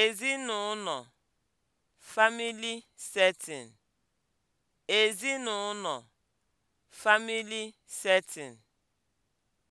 Ezinụlọ (family setting) Ezinụlọ (family setting)